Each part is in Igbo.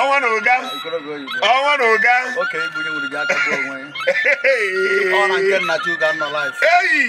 ọnwa na ụga ọnwa na ụga eyi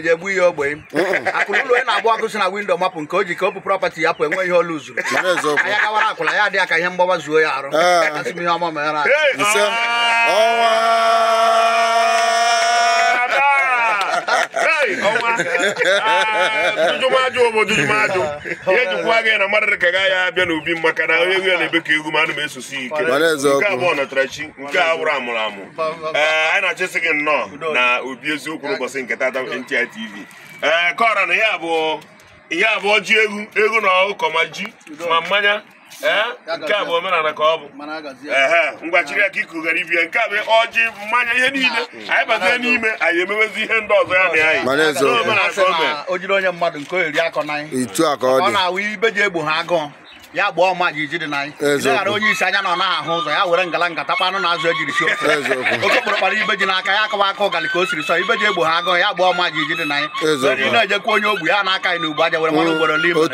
ga egbu ihe ogbenye akụrụ ụlọ onye na-agba ọkụ si na windo mapụ nke o ji ka o bụ prọpati ya pụ enwe ihe olu zuru anya gawara akwụla ya adịghị ka ihe mgbawa zuo ya arụ eh. asị m ihe ọma ọnwa jụjụmajụ ụmụ jụjụmajụ ihe jikwa gị na mmadụ dị ka gaghị abịa n'ubi maka na onye ya na-ebe ka egwu ma anụ m esosi ike nke abụọ nọtara chi nke a wụrụ amụrụ amụ ee anyị na-achịsị gị nnọọ na obi eziokwu n'ụbọchị nke tata NTI TV ee kọra na ihe abụọ ji egwu egwu na ụkọ ma ji ma mmanya Eh? nke a bụ omenala ka ọ bụ ka chiri aka ikugara ya nke a bụ ọjị mmanya ihe niile anyị bazie n'ime anyị emewezi ihe ndị ọzọ ya na anyị omenala ka o mere o jiri onye mmadụ nke o ịtụ akọ n'anya ọ na-awụ ibe ji egbo ha agụụ ya gba ọma ji dị na anyị ghara onye isi anya nọ na-ahụ ụzọ ya were ngala nkata kpanụ na azụ ejiri si oke kpọrọ kpara ibe ji n'aka ya akawa aka ụgali ka o siri sọ ibe ji egbo ha agụ ya gba ọma ji dị na anyị na-ejekwa onye ogbu ya na aka anyị na ugbu aja were mmanụ ugboro n'ime